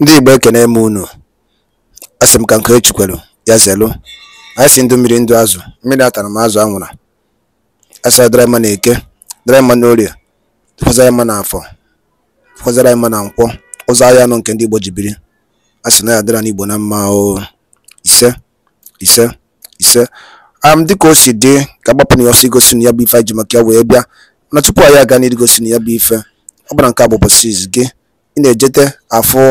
Ndị Igbo ekene m unu, asị m ka Nkechi kwelu, ya zelu anyị si ndụ mmiri ndụ azụ, mmiri atara m azụ anwụra, a sara dara mma n'eke, dara mma n'orie, tụkwazara mma n'afọ, tụkwazara mma na nkwọ, ụzọ ahịa anọ nke ndị Igbo ji biri, a sị na ya na mma o, ise, ise, ise, am dịka o si dị ka agbapụ na ọsọ igosi na ya bụ ife anyị ji maka ya wee bịa, mana tupu anyị aga gosi na ya bụ ife, ọ bụla nke a bụ ụbọchị gị, ị na-ejete afụ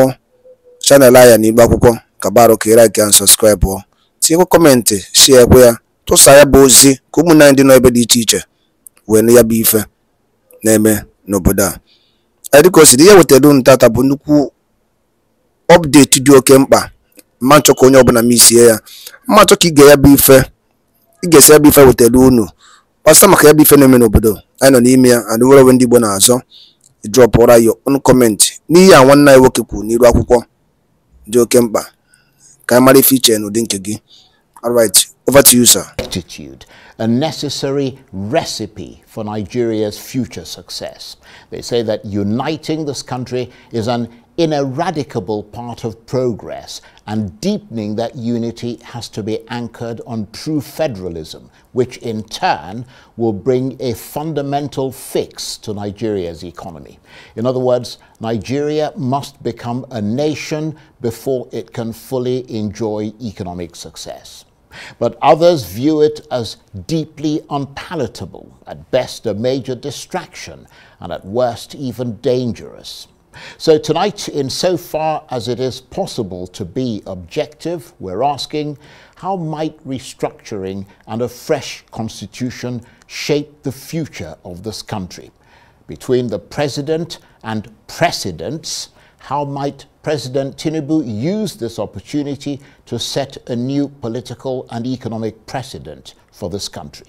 chanel anyị na Akwụkwọ ka barụka ị like and subscribe ọ tinyekwa kọmentị shiekwe ya tụsa ya bụ ozi ka ụmụnne dị n'ebe dị iche iche wee ya bụ ife na-eme n'obodo a dịka o dị ihe wetara unu tata bụ nnukwu ọpdeti dị oke mkpa mma nchọ ka onye ọbụla m isie ya mma nchọ ka ige ya bụ ife ị esi ya bụ ife wetara unu kpasa maka ya bụ ife na-eme n'obodo anyị nọ n'ime ya adịwere onwe ndị Igbo na-azọ drọpụra ya ọnụ kọmentị n'ihi a nwanne anyị nwoke kwuru n'iru akwụkwọ dị oke mkpa ka mara ife n'ụdị nke gị alright over to you sir attitude a necessary recipe for Nigeria's future success. They say that uniting this country is an ineradicable part of progress, and deepening that unity has to be anchored on true federalism, which in turn will bring a fundamental fix to Nigeria's economy. In other words, Nigeria must become a nation before it can fully enjoy economic success. But others view it as deeply unpalatable, at best a major distraction, and at worst even dangerous. So tonight, in so far as it is possible to be objective, we're asking how might restructuring and a fresh constitution shape the future of this country? Between the president and precedents, how might President Tinubu use this opportunity to set a new political and economic precedent for this country?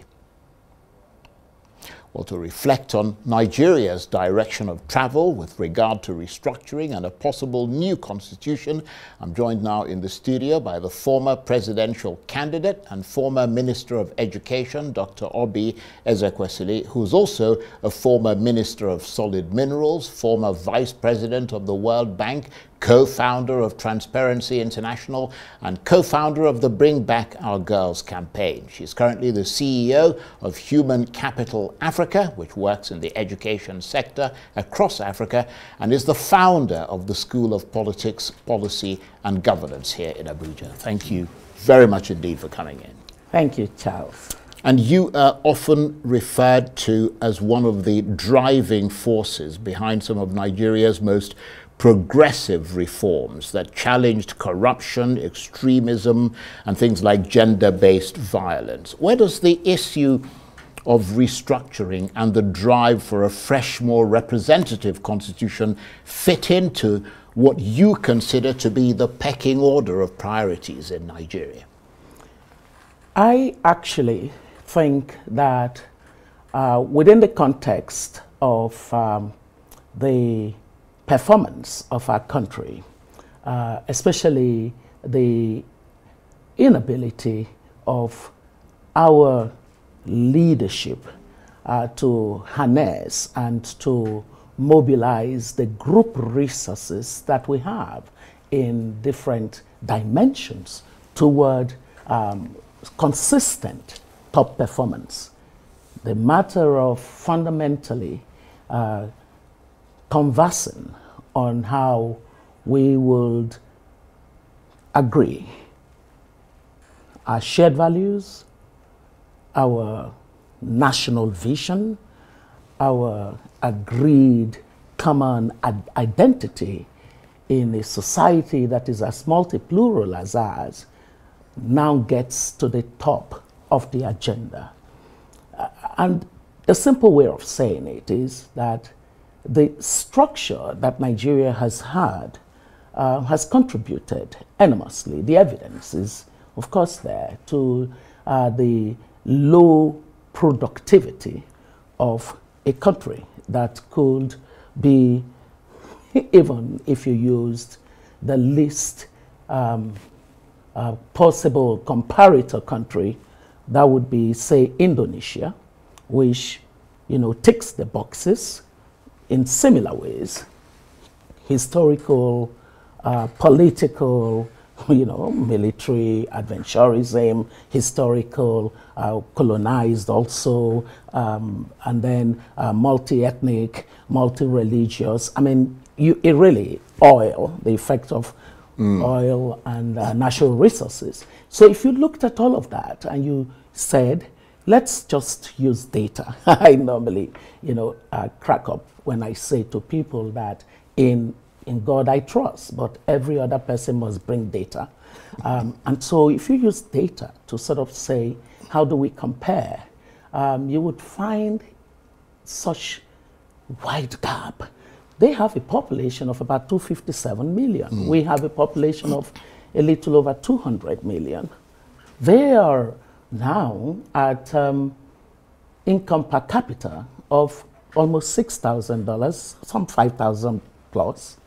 Or to reflect on Nigeria's direction of travel with regard to restructuring and a possible new constitution, I'm joined now in the studio by the former presidential candidate and former Minister of Education, Dr. Obi Ezekwesili, who's also a former Minister of Solid Minerals, former Vice President of the World Bank, co-founder of Transparency International and co-founder of the Bring Back Our Girls campaign. She's currently the CEO of Human Capital Africa, which works in the education sector across Africa, and is the founder of the School of Politics, Policy and Governance here in Abuja. Thank you very much indeed for coming in. Thank you, Charles. And you are often referred to as one of the driving forces behind some of Nigeria's most progressive reforms that challenged corruption, extremism, and things like gender based violence. Where does the issue of restructuring and the drive for a fresh, more representative constitution fit into what you consider to be the pecking order of priorities in Nigeria? I actually think that uh, within the context of um, the performance of our country, uh, especially the inability of our leadership uh, to harness and to mobilize the group resources that we have in different dimensions toward um, consistent top performance. The matter of fundamentally uh, conversing on how we would agree our shared values, our national vision, our agreed common identity in a society that is as multi-plural as ours now gets to the top of the agenda. And the simple way of saying it is that the structure that Nigeria has had uh, has contributed enormously. The evidence is, of course, there to uh, the low productivity of a country that could be, even if you used the least um, uh, possible comparator country, that would be, say, Indonesia, which, you know, ticks the boxes in similar ways, historical, uh, political, you know, military adventurism, historical, uh, colonized also, um, and then uh, multi-ethnic, multi-religious. I mean, you, it really, oil, the effect of mm. oil and uh, natural resources. So if you looked at all of that and you said, let's just use data. I normally, you know, uh, crack up when I say to people that in in God I trust, but every other person must bring data. Um, and so, if you use data to sort of say, how do we compare, um, you would find such wide gap. They have a population of about 257 million. Mm. We have a population of a little over 200 million. They are now at um, income per capita of almost $6,000, some 5,000 plus,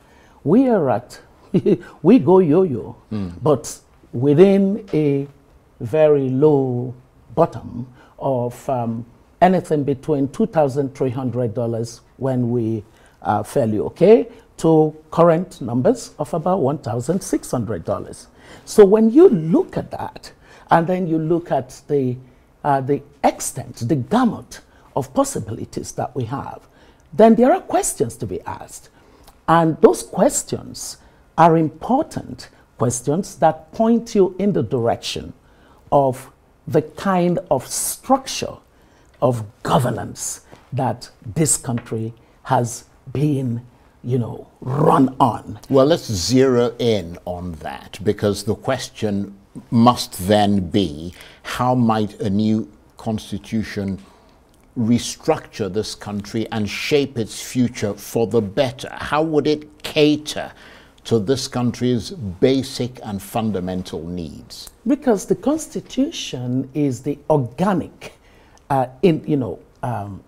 we are at, we go yo-yo, mm. but within a very low bottom of um, anything between $2,300 when we are uh, fairly okay to current numbers of about $1,600. So when you look at that, and then you look at the, uh, the extent, the gamut of possibilities that we have. Then there are questions to be asked. And those questions are important questions that point you in the direction of the kind of structure of governance that this country has been you know, run on. Well, let's zero in on that because the question must then be how might a new constitution restructure this country and shape its future for the better? How would it cater to this country's basic and fundamental needs? Because the constitution is the organic, uh, in, you know, um,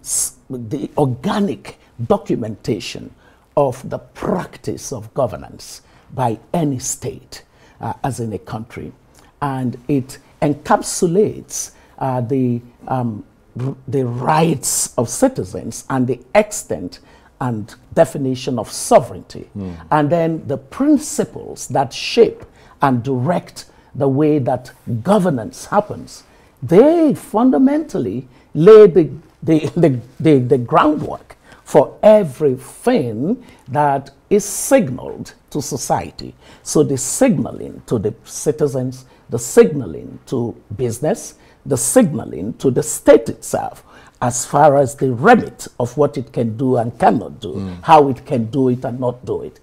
the organic documentation of the practice of governance by any state uh, as in a country and it encapsulates uh, the, um, the rights of citizens and the extent and definition of sovereignty, mm. and then the principles that shape and direct the way that governance happens. They fundamentally lay the, the, the, the, the groundwork for everything that is signaled to society. So the signaling to the citizens, the signaling to business, the signaling to the state itself as far as the remit of what it can do and cannot do, mm. how it can do it and not do it.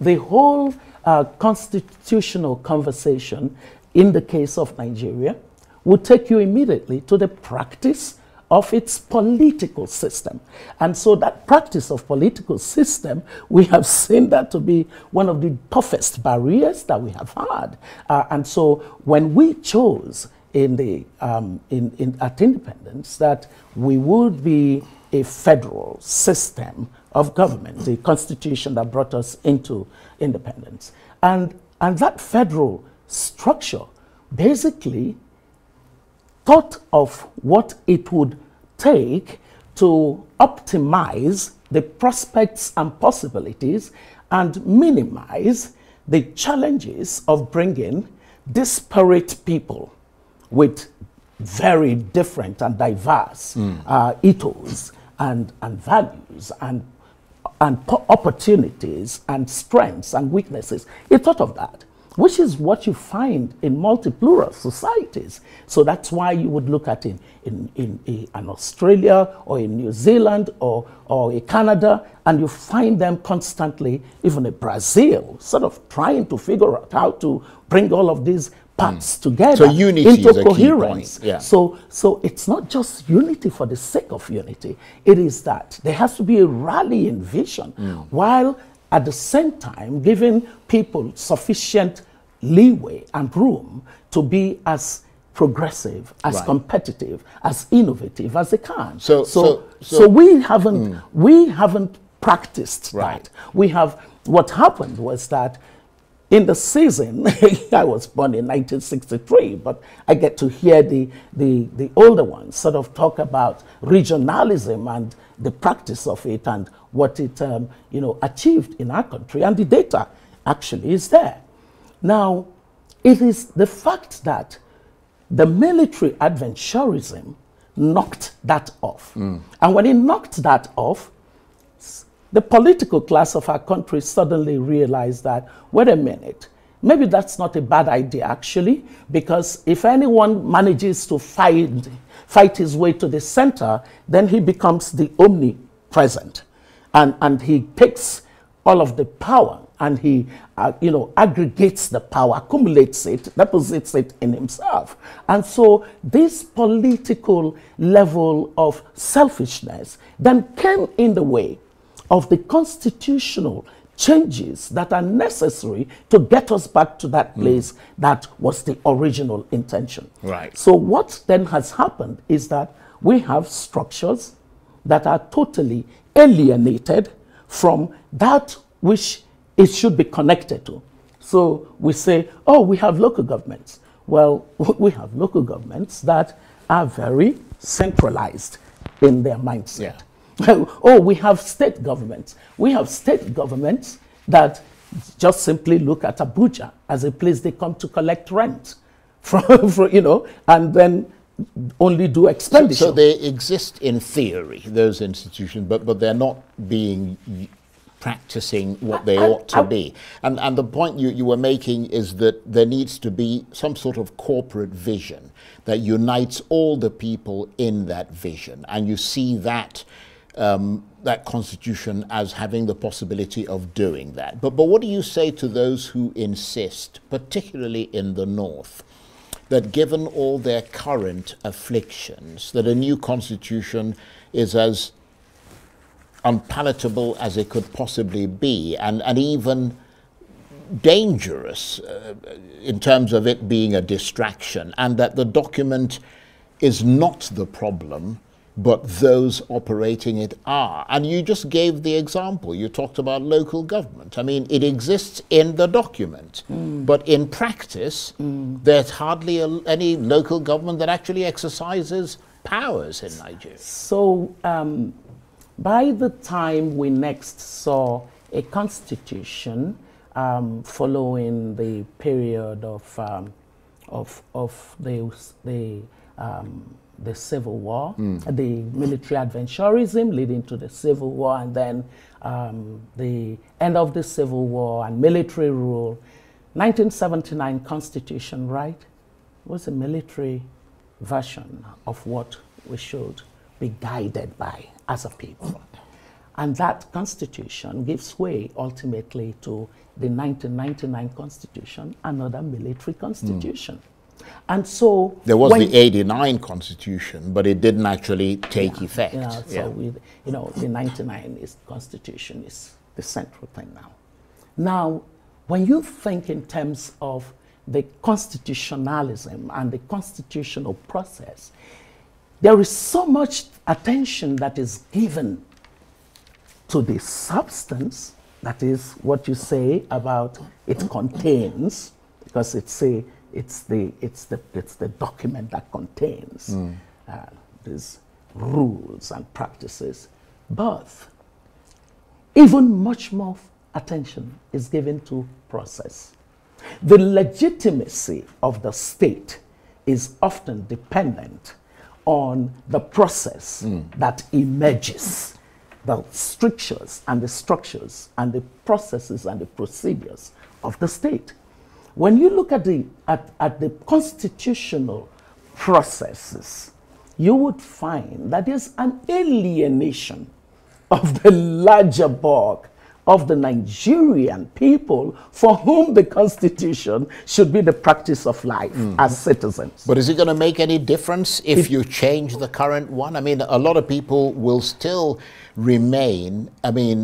The whole uh, constitutional conversation in the case of Nigeria would take you immediately to the practice of its political system. And so that practice of political system, we have seen that to be one of the toughest barriers that we have had. Uh, and so when we chose in the, um, in, in, at independence that we would be a federal system of government, the constitution that brought us into independence. And, and that federal structure basically thought of what it would take to optimize the prospects and possibilities and minimize the challenges of bringing disparate people with very different and diverse mm. uh, ethos and, and values and, and opportunities and strengths and weaknesses. He thought of that which is what you find in multi-plural societies. So that's why you would look at in, in, in, in an Australia or in New Zealand or, or in Canada, and you find them constantly, even in Brazil, sort of trying to figure out how to bring all of these parts mm. together so unity into coherence. Yeah. So, so it's not just unity for the sake of unity. It is that there has to be a rallying vision mm. while at the same time giving people sufficient leeway and room to be as progressive, as right. competitive, as innovative as they can. So, so, so, so, we haven't, mm. we haven't practiced right. that. We have, what happened was that in the season, I was born in 1963, but I get to hear the, the, the older ones sort of talk about regionalism and the practice of it and what it um, you know, achieved in our country. And the data actually is there. Now, it is the fact that the military adventurism knocked that off. Mm. And when it knocked that off, the political class of our country suddenly realized that, wait a minute, maybe that's not a bad idea actually, because if anyone manages to fight, fight his way to the center, then he becomes the omnipresent. And, and he takes all of the power and he uh, you know aggregates the power accumulates it deposits it in himself and so this political level of selfishness then came in the way of the constitutional changes that are necessary to get us back to that hmm. place mm. that was the original intention right so what then has happened is that we have structures that are totally alienated from that which it should be connected to. So we say, oh, we have local governments. Well, we have local governments that are very centralized in their mindset. Yeah. oh, we have state governments. We have state governments that just simply look at Abuja as a place they come to collect rent from, from you know, and then only do expenditure. So, so, they exist in theory, those institutions, but, but they're not being practicing what they I, ought to I, be. And, and the point you, you were making is that there needs to be some sort of corporate vision that unites all the people in that vision. And you see that. Um, that constitution as having the possibility of doing that. But, but what do you say to those who insist, particularly in the North, that given all their current afflictions, that a new constitution is as unpalatable as it could possibly be, and, and even dangerous uh, in terms of it being a distraction, and that the document is not the problem, but those operating it are. And you just gave the example. You talked about local government. I mean, it exists in the document, mm. but in practice, mm. there's hardly a, any local government that actually exercises powers in Nigeria. So, um, by the time we next saw a constitution um, following the period of, um, of, of the, the, um, the Civil War, mm. the military adventurism leading to the Civil War, and then um, the end of the Civil War and military rule, 1979 Constitution, right, was a military version of what we should be guided by as a people. And that constitution gives way ultimately to the 1999 constitution, another military constitution. Mm. And so there was the 89 constitution, but it didn't actually take yeah, effect. Yeah, so yeah. We, you know, the 99 is constitution is the central thing now. Now, when you think in terms of the constitutionalism and the constitutional process, there is so much attention that is given to the substance, that is what you say about it contains, because it's, a, it's, the, it's, the, it's the document that contains mm. uh, these rules and practices. But even much more attention is given to process. The legitimacy of the state is often dependent on the process mm. that emerges, the strictures and the structures and the processes and the procedures of the state. When you look at the, at, at the constitutional processes, you would find that there's an alienation of the larger bulk of the Nigerian people for whom the Constitution should be the practice of life mm as citizens. But is it going to make any difference if, if you change the current one? I mean, a lot of people will still remain, I mean,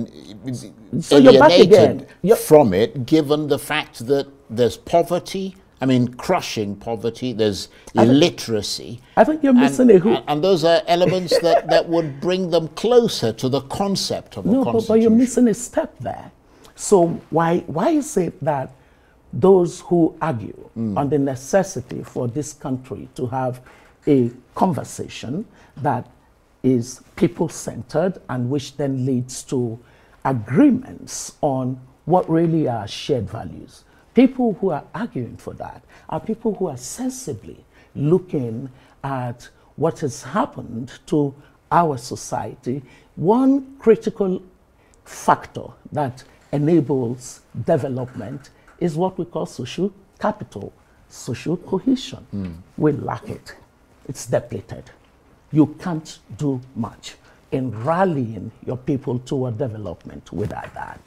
so alienated from it, given the fact that there's poverty, I mean, crushing poverty, there's illiteracy. I think you're missing and, a And those are elements that, that would bring them closer to the concept of no, but, but you're missing a step there. So why, why is it that those who argue mm. on the necessity for this country to have a conversation that is people-centered and which then leads to agreements on what really are shared values People who are arguing for that are people who are sensibly looking at what has happened to our society. One critical factor that enables development is what we call social capital, social cohesion. Mm. We lack it, it's depleted. You can't do much in rallying your people toward development without that.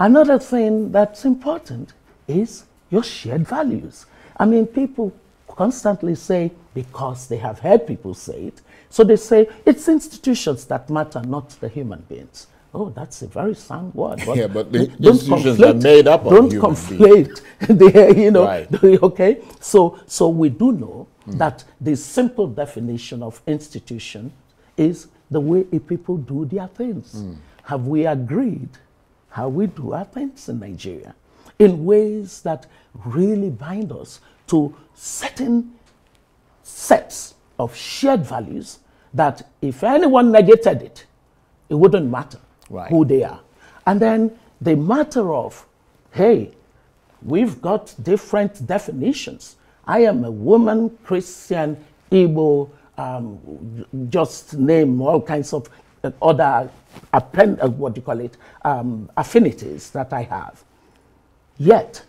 Another thing that's important is your shared values. I mean, people constantly say, because they have heard people say it, so they say, it's institutions that matter, not the human beings. Oh, that's a very sound word. But yeah, but the institutions conflate, are made up of Don't human conflate. the, you know, right. okay? So, so we do know mm. that the simple definition of institution is the way people do their things. Mm. Have we agreed how we do our things in Nigeria? in ways that really bind us to certain sets of shared values that if anyone negated it, it wouldn't matter right. who they are. And then the matter of, hey, we've got different definitions. I am a woman, Christian, Igbo, um, just name all kinds of uh, other, uh, what do you call it, um, affinities that I have. Yet,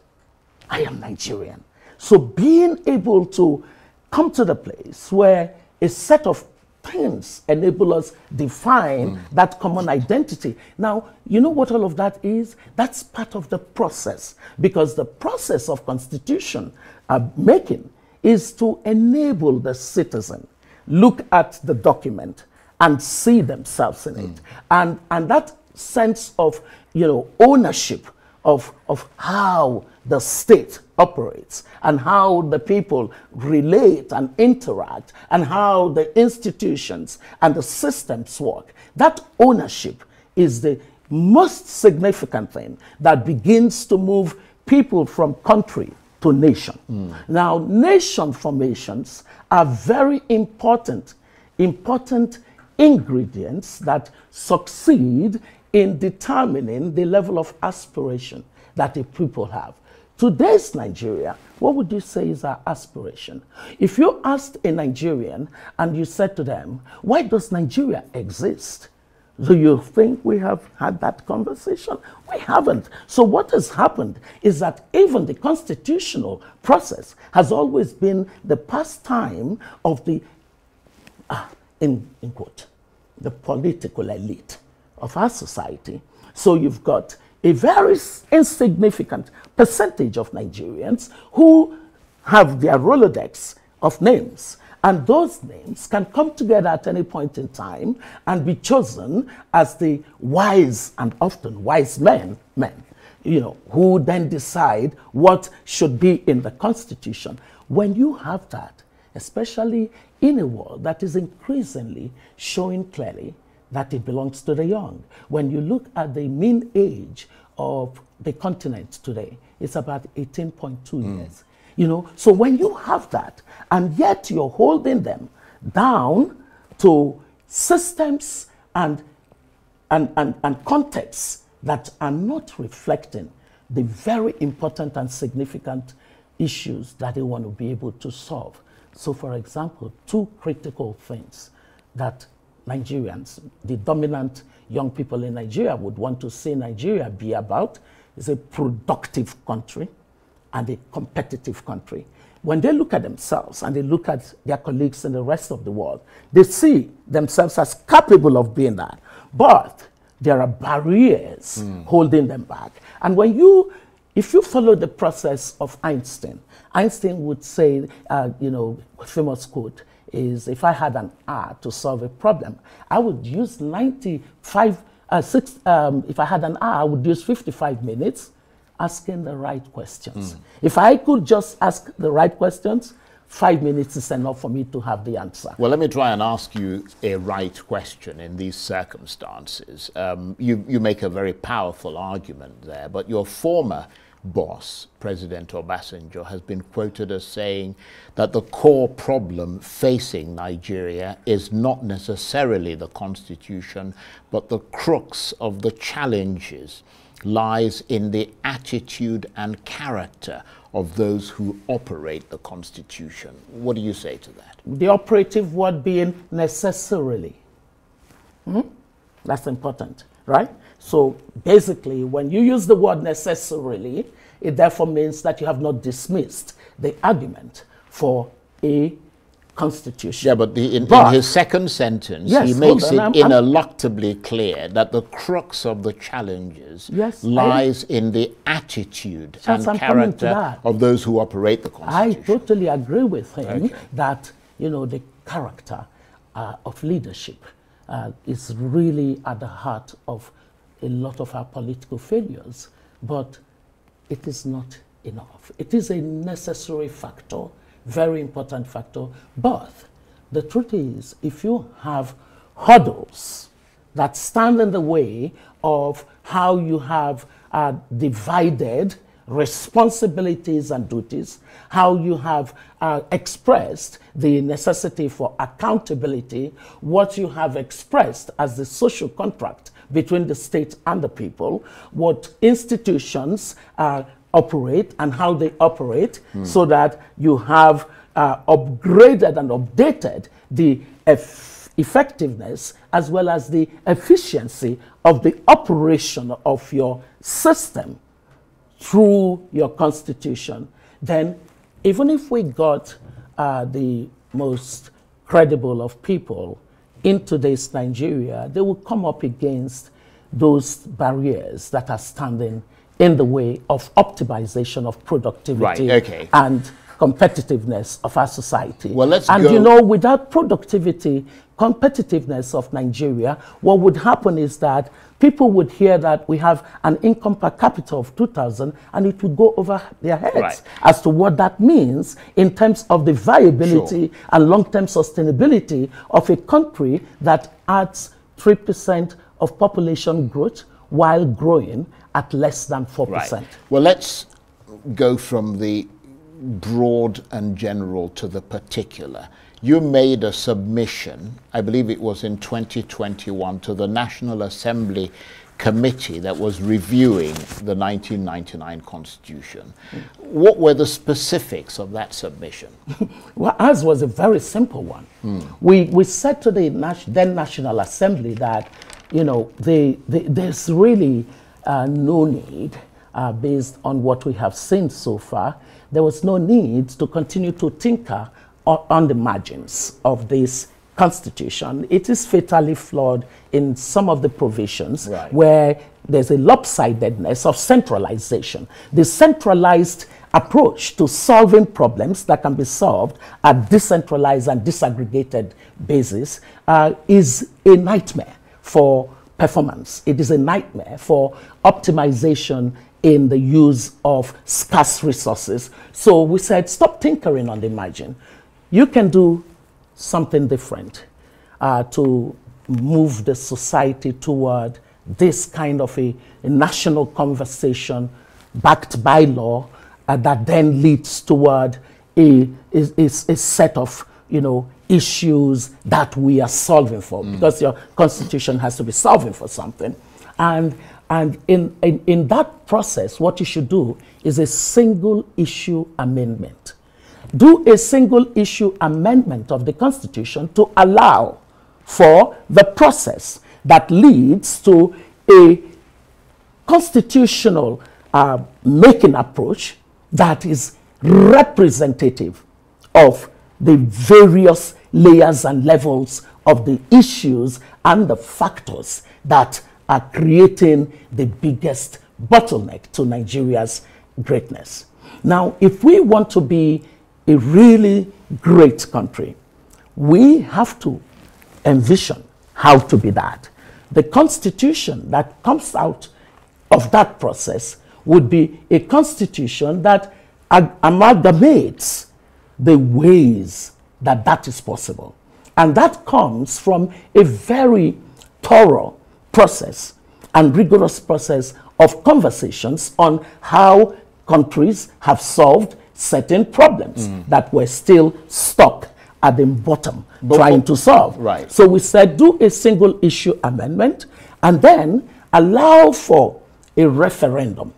I am Nigerian. So being able to come to the place where a set of things enable us define mm. that common identity. Now, you know what all of that is? That's part of the process because the process of constitution uh, making is to enable the citizen look at the document and see themselves in mm. it. And, and that sense of, you know, ownership of, of how the state operates and how the people relate and interact and how the institutions and the systems work. That ownership is the most significant thing that begins to move people from country to nation. Mm. Now, nation formations are very important, important ingredients that succeed in determining the level of aspiration that the people have. Today's Nigeria, what would you say is our aspiration? If you asked a Nigerian and you said to them, why does Nigeria exist? Do you think we have had that conversation? We haven't. So, what has happened is that even the constitutional process has always been the pastime of the, ah, in, in quote, the political elite of our society. So you've got a very insignificant percentage of Nigerians who have their Rolodex of names. And those names can come together at any point in time and be chosen as the wise and often wise men, men, you know, who then decide what should be in the constitution. When you have that, especially in a world that is increasingly showing clearly that it belongs to the young. When you look at the mean age of the continent today, it's about 18.2 mm. years. You know, so when you have that, and yet you're holding them down to systems and and, and, and contexts that are not reflecting the very important and significant issues that they want to be able to solve. So, for example, two critical things that Nigerians, the dominant young people in Nigeria would want to see Nigeria be about is a productive country and a competitive country. When they look at themselves and they look at their colleagues in the rest of the world, they see themselves as capable of being that. But there are barriers mm. holding them back. And when you, if you follow the process of Einstein, Einstein would say, uh, you know, famous quote, is if I had an hour to solve a problem, I would use 95, uh, six, um, if I had an hour, I would use 55 minutes asking the right questions. Mm. If I could just ask the right questions, five minutes is enough for me to have the answer. Well, let me try and ask you a right question in these circumstances. Um, you, you make a very powerful argument there, but your former boss, President Obasanjo, has been quoted as saying that the core problem facing Nigeria is not necessarily the constitution, but the crux of the challenges lies in the attitude and character of those who operate the constitution. What do you say to that? The operative word being necessarily. -hmm. That's important, right? So basically, when you use the word necessarily, it therefore means that you have not dismissed the argument for a constitution. Yeah, but, the, in, but in, his second sentence, yes, he makes on, it I'm, ineluctably I'm, clear that the crux of the challenges yes, lies I, in the attitude and I'm character of those who operate the constitution. I totally agree with him okay. that you know the character uh, of leadership uh, is really at the heart of a lot of our political failures, but it is not enough. It is a necessary factor, very important factor. But the truth is, if you have hurdles that stand in the way of how you have uh, divided responsibilities and duties, how you have uh, expressed the necessity for accountability, what you have expressed as the social contract between the state and the people, what institutions uh, operate and how they operate, mm. so that you have uh, upgraded and updated the effectiveness as well as the efficiency of the operation of your system through your constitution, then even if we got uh, the most credible of people in today's Nigeria, they will come up against those barriers that are standing in the way of optimization of productivity right, okay. and competitiveness of our society. Well, let's and go. you know, without productivity, competitiveness of Nigeria, what would happen is that people would hear that we have an income per capita of 2,000 and it would go over their heads right. as to what that means in terms of the viability sure. and long-term sustainability of a country that adds 3% of population growth while growing at less than 4%. Right. Well, let's go from the broad and general to the particular. You made a submission, I believe it was in 2021, to the National Assembly committee that was reviewing the 1999 Constitution. What were the specifics of that submission? well, ours was a very simple one. Mm. We, we said to the then National Assembly that, you know, there's really uh, no need, uh, based on what we have seen so far, there was no need to continue to tinker on the margins of this constitution. It is fatally flawed in some of the provisions right. where there's a lopsidedness of centralization. The centralized approach to solving problems that can be solved at decentralized and disaggregated basis uh, is a nightmare for performance. It is a nightmare for optimization in the use of scarce resources. So we said, stop tinkering on the margin. You can do something different uh, to move the society toward this kind of a, a national conversation backed by law uh, that then leads toward a, a, a set of you know, issues that we are solving for mm. because your constitution has to be solving for something. And and in, in, in that process, what you should do is a single issue amendment. Do a single issue amendment of the Constitution to allow for the process that leads to a constitutional uh, making approach that is representative of the various layers and levels of the issues and the factors that are creating the biggest bottleneck to Nigeria's greatness. Now, if we want to be a really great country, we have to envision how to be that. The constitution that comes out of that process would be a constitution that amalgamates the ways that that is possible. And that comes from a very thorough process and rigorous process of conversations on how countries have solved certain problems mm. that were still stuck at the bottom but trying to solve. Right. So we said do a single issue amendment and then allow for a referendum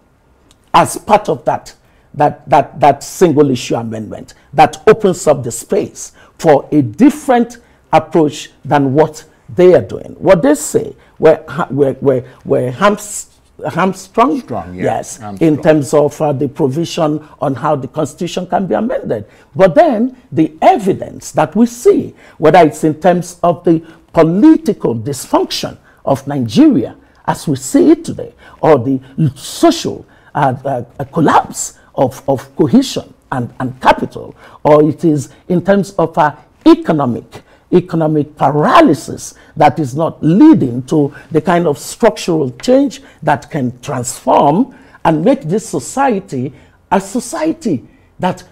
as part of that that that that single issue amendment that opens up the space for a different approach than what they are doing. What they say were, were, were, were hamstrung hamstrung, Strong, yeah. yes, hamstrung. in terms of uh, the provision on how the constitution can be amended. But then the evidence that we see, whether it's in terms of the political dysfunction of Nigeria as we see it today, or the social uh, uh, collapse of, of cohesion and, and capital, or it is in terms of our uh, economic economic paralysis that is not leading to the kind of structural change that can transform and make this society a society that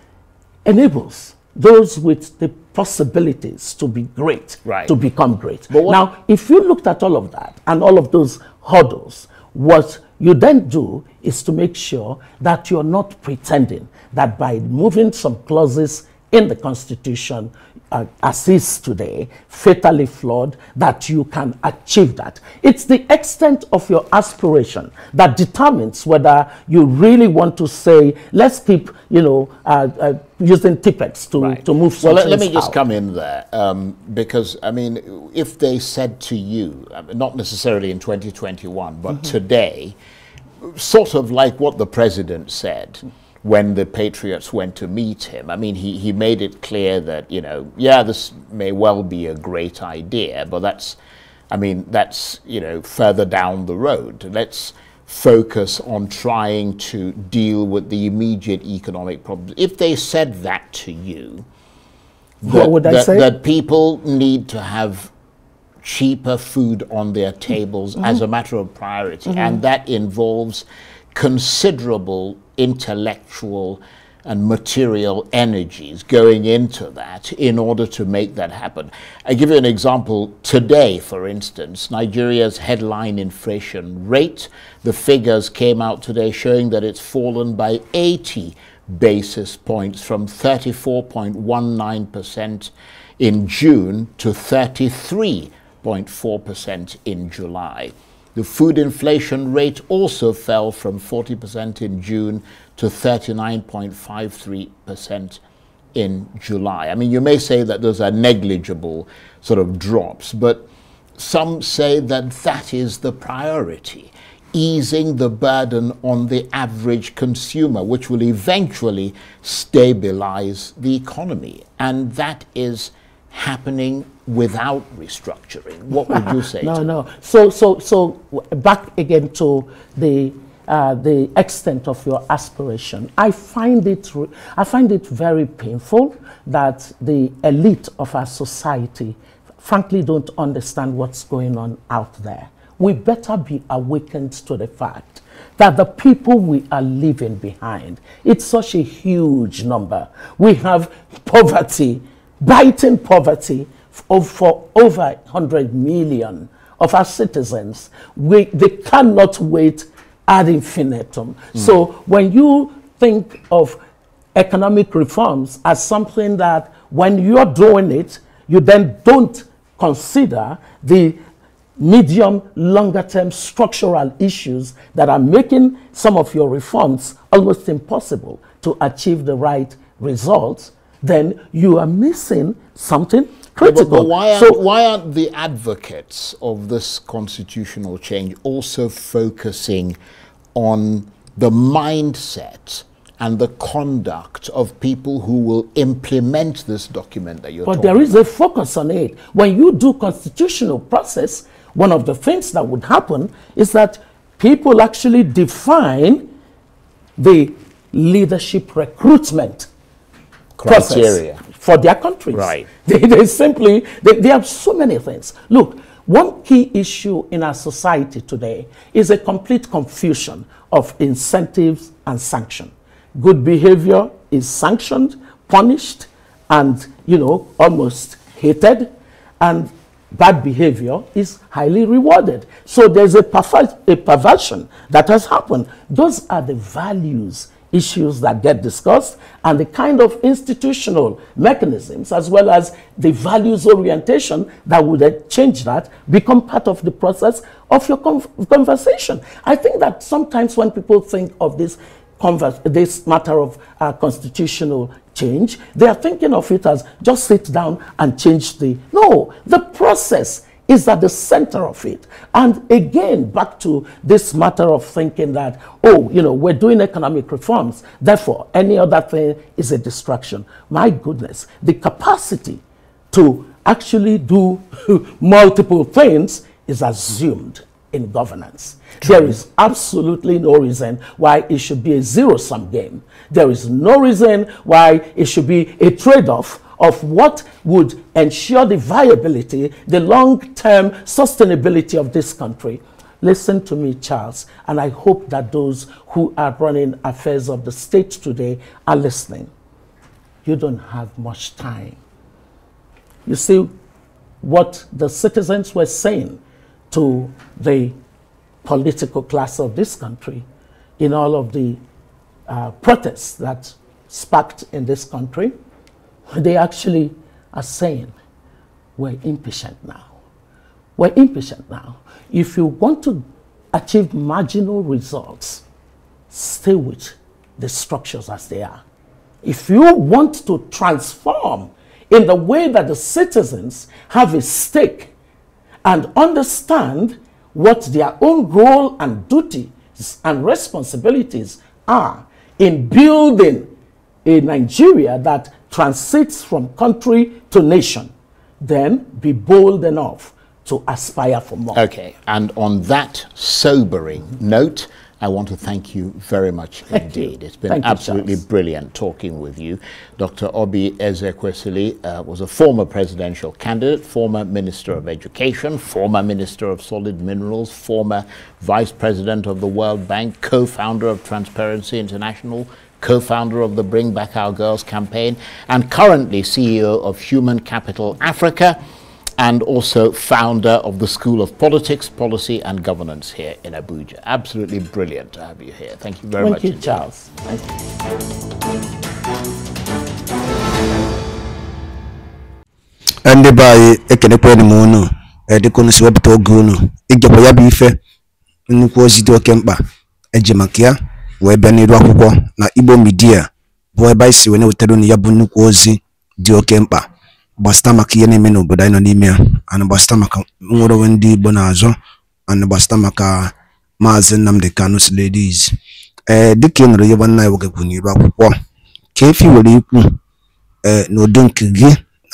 enables those with the possibilities to be great, right. to become great. Now, if you looked at all of that and all of those hurdles, what you then do is to make sure that you're not pretending that by moving some clauses in the Constitution uh, as is today, fatally flawed, that you can achieve that. It's the extent of your aspiration that determines whether you really want to say, let's keep, you know, uh, uh, using TPEX to, right. to move Well, let, let me out. just come in there, um, because, I mean, if they said to you, uh, not necessarily in 2021, but mm -hmm. today, sort of like what the president said, when the Patriots went to meet him. I mean, he, he made it clear that, you know, yeah, this may well be a great idea, but that's, I mean, that's, you know, further down the road. Let's focus on trying to deal with the immediate economic problems. If they said that to you, that, what would I that, say? That people need to have cheaper food on their tables mm -hmm. as mm-hmm. a matter of priority, mm -hmm. and that involves considerable intellectual and material energies going into that in order to make that happen. I give you an example today, for instance, Nigeria's headline inflation rate. The figures came out today showing that it's fallen by 80 basis points from 34.19% in June to 33.4% in July. The food inflation rate also fell from 40% in June to 39.53% in July. I mean, you may say that those are negligible sort of drops, but some say that that is the priority easing the burden on the average consumer, which will eventually stabilize the economy. And that is happening without restructuring. What would you say? no, no. So, so, so back again to the uh, the extent of your aspiration. I find it I find it very painful that the elite of our society, frankly, don't understand what's going on out there. We better be awakened to the fact that the people we are leaving behind, it's such a huge number. We have poverty, biting poverty, for over 100 million of our citizens. We, they cannot wait ad infinitum. Mm. So when you think of economic reforms as something that when you're doing it, you then don't consider the medium, longer term structural issues that are making some of your reforms almost impossible to achieve the right results, then you are missing something critical. But, but why, aren't, so, why aren't the advocates of this constitutional change also focusing on the mindset and the conduct of people who will implement this document that you're but there is about. a focus on it when you do constitutional process one of the things that would happen is that people actually define the leadership recruitment criteria process for their countries. Right. They, they simply, they, they have so many things. Look, one key issue in our society today is a complete confusion of incentives and sanction. Good behavior is sanctioned, punished, and, you know, almost hated. And bad behavior is highly rewarded. So there's a, perver a perversion that has happened. Those are the values issues that get discussed and the kind of institutional mechanisms as well as the values orientation that would change that become part of the process of your conversation. I think that sometimes when people think of this Converse, this matter of uh, constitutional change, they are thinking of it as just sit down and change the. No, the process is at the center of it. And again, back to this matter of thinking that, oh, you know, we're doing economic reforms, therefore any other thing is a distraction. My goodness, the capacity to actually do multiple things is assumed in governance. True. There is absolutely no reason why it should be a zero sum game. There is no reason why it should be a trade off of what would ensure the viability, the long term sustainability of this country. Listen to me, Charles, and I hope that those who are running affairs of the state today are listening. You don't have much time. You see what the citizens were saying to the political class of this country in all of the uh, protests that sparked in this country they actually are saying, we're impatient now. We're impatient now. If you want to achieve marginal results, stay with the structures as they are. If you want to transform in the way that the citizens have a stake and understand what their own role and duties and responsibilities are in building a Nigeria that transits from country to nation, then be bold enough to aspire for more. Okay, and on that sobering mm -hmm. note, I want to thank you very much thank indeed. You. It's been thank absolutely you, brilliant talking with you. Dr. Obi Ezekwesili uh, was a former presidential candidate, former Minister of Education, former Minister of Solid Minerals, former Vice President of the World Bank, co-founder of Transparency International, co-founder of the Bring Back Our Girls campaign and currently CEO of Human Capital Africa and also founder of the School of Politics, Policy and Governance here in Abuja. Absolutely brilliant to have you here. Thank you very Thank much. You, Charles. ya wee bịa iru akwụkwọ na Igbo midia bụ ebe anyị si wee na-wetara unu ya bụ nnukwu ozi dị oke mkpa gbasịta maka ihe na-eme n'obodo anyị nọ n'ime ya ana gbasịta maka nwere onwe ndị Igbo na-azọ ana gbasịta maka Maazị Nnamdi Kanu Sirleadys ee eh, dịka ị nụrụ ihe nwanne anyị nwoke kwuru n'iru akwụkwọ ka efi were ikwu ee eh, n'udo nke gị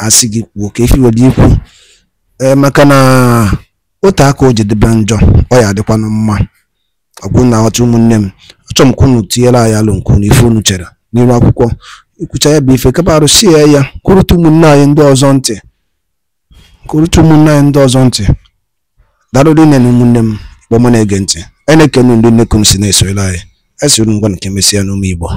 asị gị kwuo ka efi were ikwu ee eh, maka na otu aka o ji njọ ọ ya adịkwanụ mma ọgwụ na aghọta ụmụnne m Achọmkwa unu tinyela anyị alụ nke unu unu chere n'ime akwụkwọ ikwucha ya bụ ife kapa arụsị ya ya kụrụta ụmụnne anyị ndị ọzọ ntị kụrụta ụmụnne anyị ndị ọzọ ntị darụrị nne na ụmụnne m kpọmụ na-ege ntị a na-ekenu ndị nnekwu m si na-esorela anyị esoro ngwa nke mesịa n'ụmụ Igbo